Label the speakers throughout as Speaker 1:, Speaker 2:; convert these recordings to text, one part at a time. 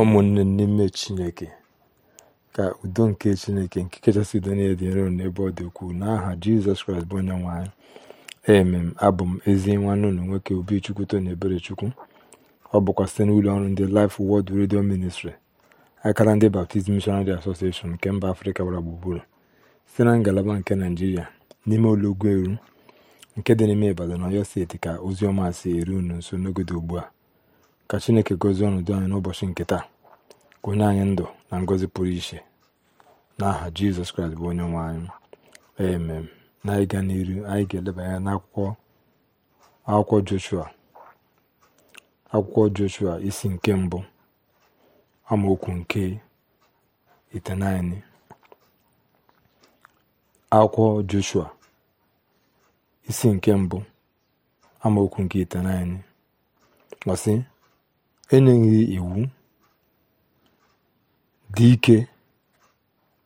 Speaker 1: ụmụnne n'ime chineke ka udo nke chineke nke kachasị udo niile dị nro n'ebe ọ dị ukwuu n'aha jizọs kraịst bụ onye nwanyị emem abụ m ezi nwanne ụlọ nwoke obichukwu ebere chukwu ọ bụkwa site n'ụlọ ọrụ ndị Life Word Radio Ministry akara ndị Baptist Missionary Association nke mba afrịka gbara gburugburu site na ngalaba nke naijiria n'ime olugwu eru nke dị n'ime Ibadan na Ọyọ steeti ka ozi ọma si eru unu nso n'oge ugbu a ka chineke gọzie ọnọdụ anyị n'ụbọchị nke taa ka onye anyị ndụ na ngọzi pụrụ iche n'aha jizọs kraịst bụ onye nwe anyị emem na ịga n'iru anyị ga elebanye n'akwụkwọ akwụkwọ joshua akwụkwọ joshua isi nke mbụ amaokwu nke itenaini akwụkwọ joshua isi nke mbụ amaokwu nke itenaini enyeghị iwu dị ike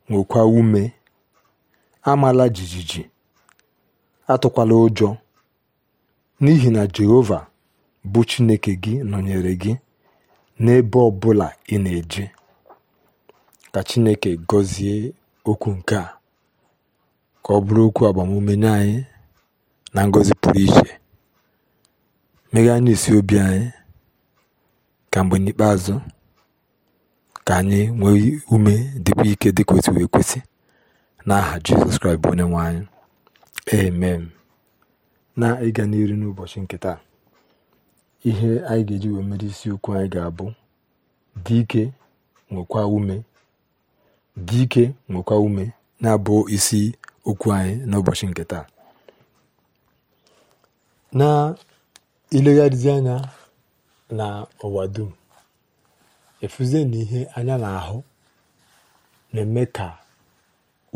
Speaker 1: nwekwa ume amala jijiji atụkwala ụjọ n'ihi na jehova bụ chineke gị nọnyere gị n'ebe ọ bụla ị na-eje ka chineke gọzie okwu nke a ka ọ bụrụ okwu agbamume nye anyị na ngọzi pụrụ iche meghe isi obi anyị ka mgbe n'ikpeazụ ka anyị nwee ume dịkwa ike dịka otu wee n'aha Jizọs Kraịst bụ onye nwe anyị amen na ịga n'iru n'ụbọchị nke taa ihe anyị ga-eji wee mere isiokwu anyị ga-abụ dị ike nwekwa ume dike nwekwa ume na-abụ isi okwu anyị n'ụbọchị nke taa n'ụwa dum efuzie na ihe anya na-ahụ na-eme ka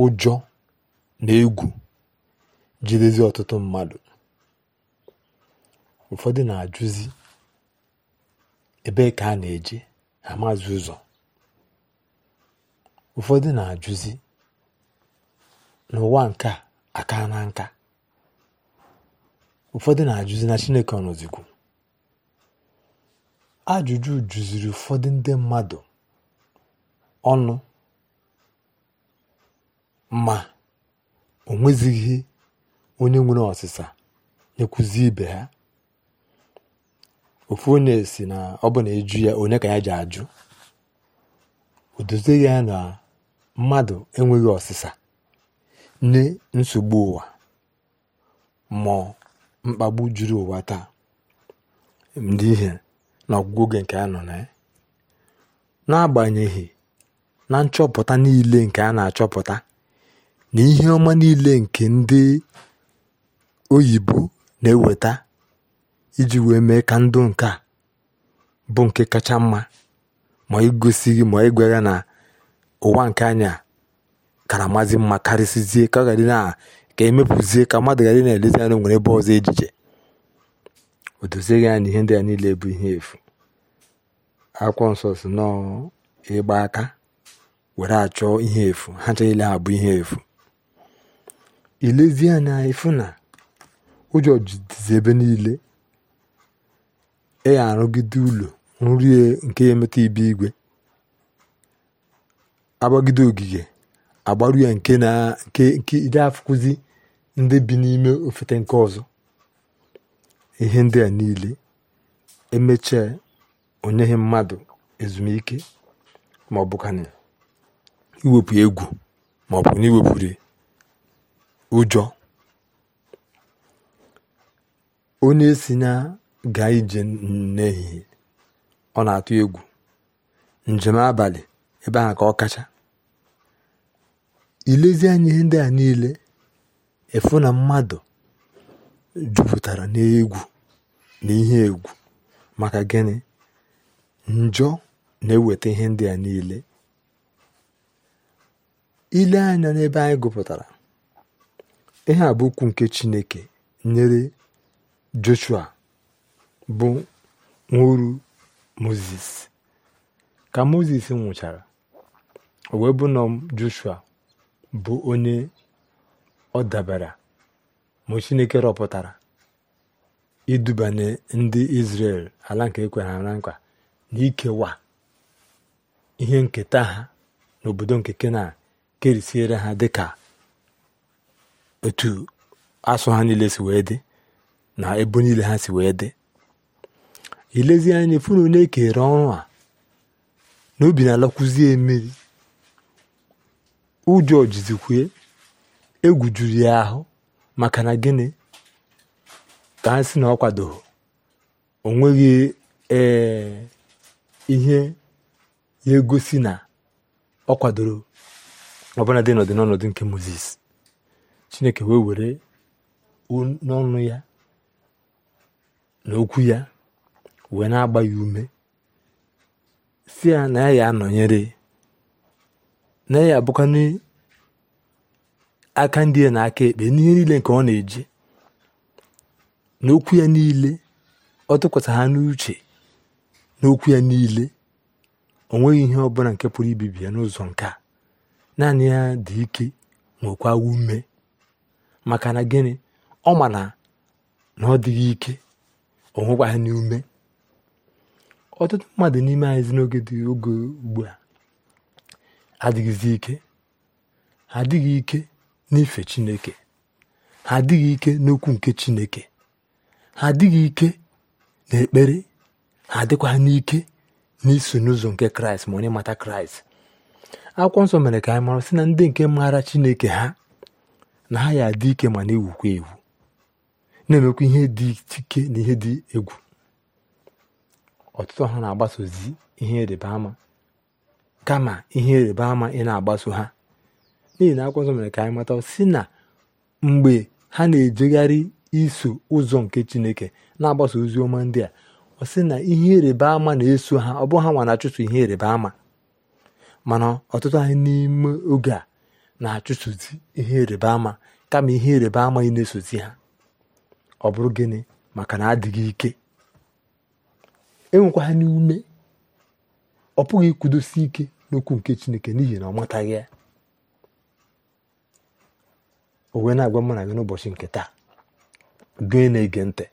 Speaker 1: ụjọ na egwu jidezi ọtụtụ mmadụ ụfọdụ na-ajụzi ebe ka a na-eje ha maazị ụzọ ụfọdụ na-ajụzi n'ụwa nke a aka na nka ụfọdụ na-ajụzi na chineke ọnọzikwu Ajụjụ juziri ụfọdụ ndị mmadụ ọnụ ma o nwezighị onye nwere ọsịsa nyekwuzi ibe ha. Ofu onye si na ọ bụ na eju ya onye ka ya ji ajụ. O dozie ya na mmadụ enweghị ọsịsa nye nsogbu ụwa ma mkpagbu juru ụwa taa. Ndị ihe na ọgwụgwụ nke a nọ na ya n'agbanyeghị na nchọpụta niile nke a na-achọpụta na ihe ọma niile nke ndị oyibo na-eweta iji wee mee ka ndụ nke a bụ nke kacha mma ma igosighị ma igwegha na ụwa nke anya karamazi mma karịsịzie ka ọ ghara na ka emepụzie ka mmadụ na-elezi nwere ebe ọzọ ejije o dozighị na ihe ndị a niile bụ ihe efu akwụkwọ nsọ si nọọ aka were achọ ihe efu ha ncha niile ha bụ ihe efu ilezi anya efu na ụjọ jidizi ebe niile ịya arụgide ụlọ nri nke ya emeta ibe igwe agbagide ogige agbaru ya nke ide afụkụzi ndị bi n'ime ofete nke ọzọ ihe ndị a niile emechaa onyeghị mmadụ ezumike ma ọ bụkana iwepụ egwu ma ọ bụ na iwepụrụ ụjọ onye si na gaa ije n'ehihie ọ na-atụ egwu njem abalị ebe ahụ ka ọ kacha ilezi anya ihe ndị a niile efu na mmadụ jupụtara n'egwu na ihe egwu maka gịnị njọ na-eweta ihe ndị a niile ile anya n'ebe anyị gụpụtara ihe a bụ ukwu nke chineke nyere joshua bụ nwuru moses ka moses nwụchara o wee bụ joshua bụ onye ọ dabara ma chineke rọpụtara idubanye ndị Izrel ala nke ekwere na nkwa na ikewa ihe nketa ha n'obodo nke kena kerisiere ha dịka otu asụ ha niile si wee dị na ebo niile ha si wee dị ilezi anya funu na-ekere ọrụ a na obi na-alakwuzie mmiri ụjọ jizikwue egwu juru ya ahụ maka na gịnị ka ha si na ọ kwadoghị o ee ihe ya egosi na ọ kwadoro ọbụla dị n'ọdị n'ọnọdụ nke moses chineke wee were n'ọnụ ya na okwu ya wee na-agba ya ume si ya na ya ya anọnyere na ya abụkwa aka ndị ya na aka ekpe n'ihe niile nke ọ na-eji n'okwu ya niile ọ tụkwasị ha n'uche n'okwu ya niile o nweghị ihe ọbụla nke pụrụ ibibi ya n'ụzọ nke a naanị ya dị ike nwekwa ume maka na gịnị ọ ma na ọ dịghị ike o nwekwaghị n'ume ọtụtụ mmadụ n'ime anyị n'oge dị oge ugbu a adịghịzi ike ha adịghị ike n'ife chineke ha adịghị ike n'okwu nke chineke ha adịghị ike n'ekpere ha adịkwa n'ike n'iso n'ụzọ nke kraịst ma onye mata kraịst akwụkwọ nsọ mere ka anyị mara sị na ndị nke maara chineke ha na ha ya adị ike ma na-ewukwa ewu na-emekwa ihe dị ike na ihe dị egwu ọtụtụ ha na-agbasozi ihe ịrịba ama kama ihe ịrịba ama ị na-agbaso ha n'ihi na akwụkwọ nsọ mere ka anyị mata si na mgbe ha na-ejegharị iso ụzọ nke chineke na agbasa ozi ọma ndị a ọ sị na ihe ịrịba ama na-eso ha ọ bụ ha nwa na-achụso ihe ịrịba ama mana ọtụtụ anyị n'ime oge a na-achụsozi ihe ịrịba ama kama ihe ịrịba ama ị na-esozi ha ọ bụrụ gịnị maka na adịghị ike enwekwa ha n'ume ọ pụghị ikwudosi ike n'okwu nke chineke n'ihi na ọ mataghị ya o wee na-agwa mụ na gị n'ụbọchị nke taa gị na-ege ntị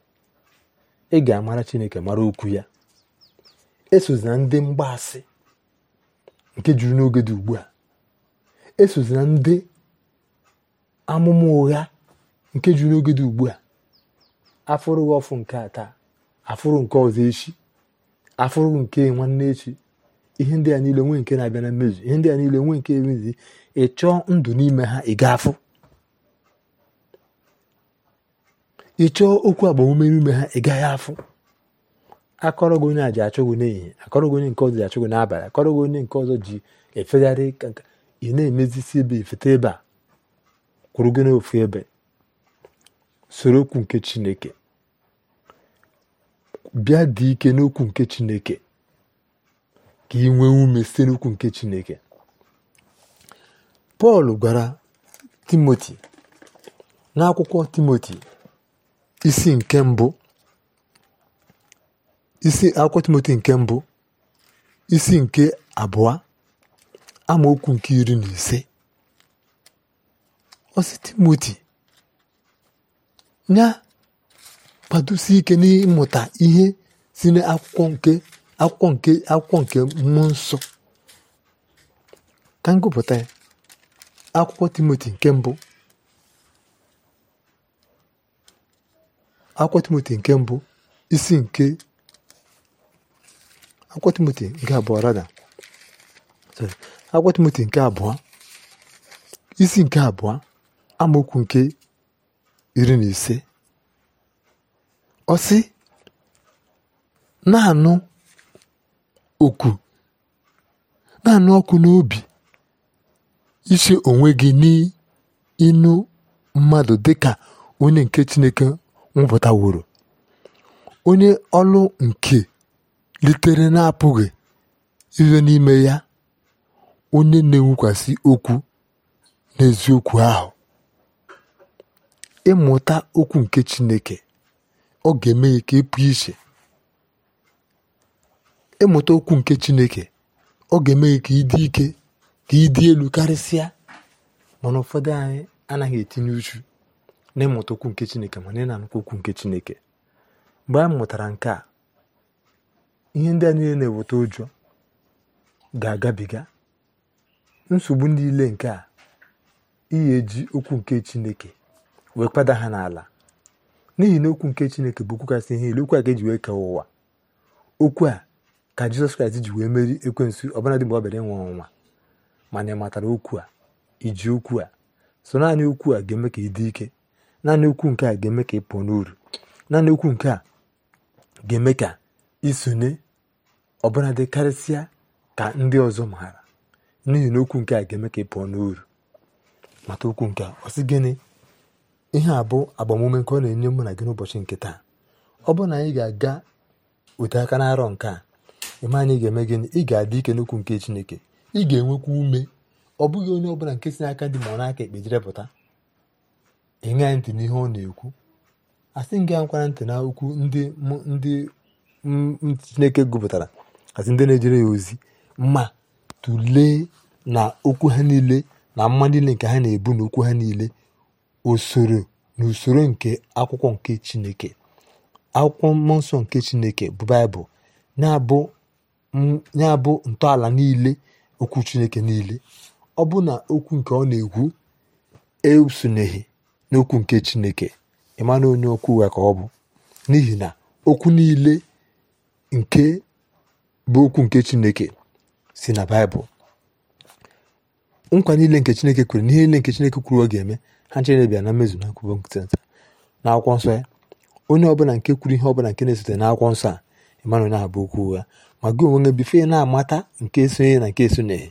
Speaker 1: ị ga-amara chineke mara okwu ya esozina ndị mgbaasị nke juru n'oge dị ugbu a esozina ndị amụma ụgha nke juru n'oge dị ugbu a afụrụ ọfụ nke ata taa afụrụ nke ọzọ echi afụrụ nke nwanne echi ihe ndị a niile nwee nke na-abịa na mmezu ihe ndị a niile nwee nke emezighị ị chọọ ndụ n'ime ha ị ga-afụ ị chọọ okwu agbamume ume ha ị gaghị afụ akọrọ gị onye a ji achụ gị n'ehihie akọrọ gị onye nke ọzọ ji achụ gị n'abalị akọrọ gị onye nke ọzọ ji efegharị ị na-emezisi ebe efete ebe a kwụrụ gị n'ofu ebe soro okwu nke chineke bịa dị ike n'okwu nke chineke ka ị nwee ume site n'okwu nke chineke pọl gwara timoti n'akwụkwọ timoti isi nke mbụ isi akwụkwọ Timoti nke mbụ isi nke abụọ amaokwu nke iri na ise osi Timoti nya kwadosi ike n'ịmụta ihe si n'akwọ nke akwụkwọ nke akwụkwọ nke mmụọ nsọ ka m gụpụta ya akwụkwọ Timoti nke mbụ akwụkwọ timoti nke mbụ isi nke akwụkwọ timoti nke abụọ rada akwụkwọ timoti nke abụọ isi nke abụọ amaokwu nke iri na ise ọsị sị na-anụ oku na-anụ ọkụ n'obi iche onwe gị n'ịnụ mmadụ dịka onye nke chineke mpụta onye ọlụ nke litere na-apụghị izo n'ime ya onye na ewukwasị okwu n'eziokwu ahụ ịmụta okwu nke Chineke ọ ga-eme ka ị e iche ịmụta okwu nke Chineke ọ ga-eme ka ịdị ike ka ị dị elu karịsịa mana ụfọdụ anyị anaghị etinye uchu n'ịmụta okwu nke chineke ma na na-anụkwa okwu nke chineke mgbe anyị mụtara nke a ihe ndị a niile na-eweta ụjọ ga-agabiga nsogbu niile nke a iyi eji okwu nke chineke wee kwada ha n'ala n'ihi na okwu nke chineke bụ okwu kasị ihe ile okwu a ga-eji wee kee ụwa okwu a ka jizọs kraịst ji wee meri ekwensu ọbụladị mgbe ọ bịara ọnwa mana ị matara okwu a iji okwu a so naanị okwu a ga-eme ka ị dị ike naanị okwu nke a ga-eme ka ị pụọ n'uru naanị okwu nke a ga-eme ka isonye ọbụla dị karịsịa ka ndị ọzọ maara n'ihi na okwu nke a ga-eme ka ị pụọ n'uru mata okwu nke a ọ sị gịnị ihe a bụ agbamume nke ọ na-enye mụ na gị n'ụbọchị nke taa ọ bụrụ na anyị ga-aga ote aka n'arọ nke a ịma anyị ga-eme gịnị ị ga-adị ike n'okwu nke chineke ị ga-enwekwa ume ọ bụghị onye ọbụla nke si n'aka dị ma ọ n'aka ekpe jirepụta pụta ịṅaghị ntị n'ihe ọ na-ekwu asị m gị ankwara ntị na okwu ndị ndị chineke gụpụtara asị ndị na-ejere ya ozi ma tụlee na okwu ha niile na mma niile nke ha na-ebu na ha niile usoro na usoro nke akwụkwọ nke chineke akwụkwọ mmụọ nsọ nke chineke bụ baịbụl na-abụ ntọala niile okwu chineke niile ọ bụ na okwu nke ọ na-ekwu esonyeghị n'okwu nke chineke ịma na onye okwu ụgha ka ọ bụ n'ihi na okwu niile nke bụ okwu nke chineke si na baịbụl nkwa niile nke chineke kwere n'ihe niile nke chineke kwuru ọ ga-eme ha ncherebịa na mmezu na nkwubo nkịtịnta na akwụkwọ nsọ ya onye ọbụla nke kwuru ihe ọbụla nke na-esote na akwụkwọ nsọ a ịmanụ na bụ okwu ụgha ma gị onwe gị bife na-amata nke esonye na nke esonyeghị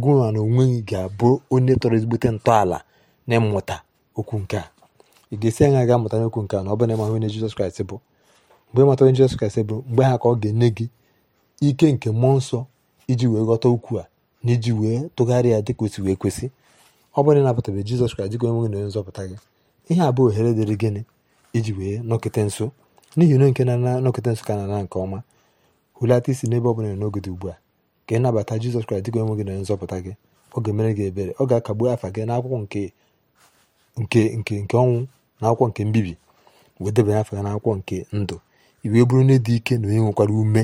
Speaker 1: gụwa na onwe gị ga-abụ onye tọrọ ezigbote ntọala na mmụta okwu nke a ị ga-esi anya ga-amụta n'okwu nke a na ọ bụla ịmahụ onye Jizọs Kraịst bụ mgbe ịmata onye Jizọs Kraịst bụ mgbe ha ka ọ ga-enye gị ike nke mmụọ nsọ iji wee ghọta okwu a na iji wee tụgharị ya dịka o si wee kwesị ọ bụrụ na Jizọs Kraịst dịka onye nwe na onye nzọpụta gị ihe a bụ ohere dịrị gịnị iji wee nọkịta nso n'ihi na nke na nọkịta nso ka na nke ọma hụlata isi n'ebe ọ bụla n'oge ugbu a ka ịnabata Jizọs Kraịst dịka onye nwe na onye nzọpụta gị ọ ga-emere gị ebere ọ ga-akagbu afa gị n'akwụkwọ nke nke nke nke ọnwụ na akwụkwọ nke mbibi wee debanye afọ ya na akwụkwọ nke ndụ iwee bụrụ onye dị ike na onye nwekwara ume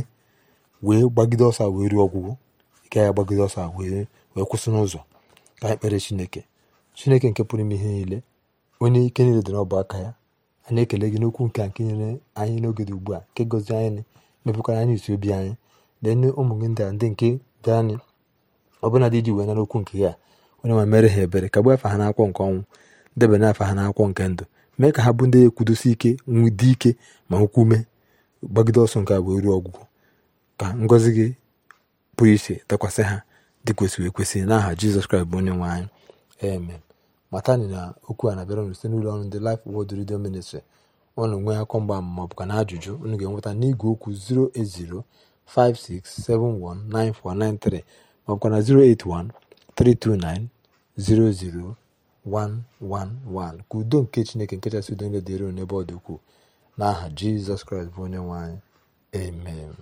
Speaker 1: wee gbagide ọsọ wee ruo ọgwụgwọ ike ya gbagide ọsọ wee wee kwụsị n'ụzọ ka anyị kpere chineke chineke nke pụrụ ime ihe niile onye ike niile dịrị ọbụ aka ya anyị ekele gị n'okwu nke a nke nyere anyị n'oge dị ugbu a nke gọzi anyị mepụkwara anyị isi obi anyị lee ụmụ gị ndị a ndị nke dị anyị ọbụla dị iji wee nara okwu nke ya onye nwe mere ha ebere ka gbu afa ha n'akwụkwọ nke ọnwụ debanye afa ha n'akwụkwọ nke ndụ mee ka ha bụ ndị ekwudosi ike nwụdị ike ma nkwume gbagide ọsọ nke a ruo ọgwụgwọ ka ngọzi gị pụrụ iche dakwasị ha dị kwesịrị ekwesị n'aha jizọs kraịst bụ onye nwe anyị amen matani na okwu a na-abịara unu site n'ụlọ ọrụ ndị Life Word Radio Ministry ọnụ nwee akọ mgba ma ọ bụ na ajụjụ unu ga-enweta n'igwe okwu 08056719493 ma na 081 329 00 111 ka udo nke chineke nke chasị udo niile dịrị n'ebe ọ dị ukwuu n'aha jizọs kraịst bụ onye nwe anyị amen